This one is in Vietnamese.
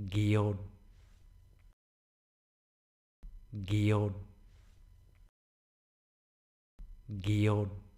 Gion Gion Gion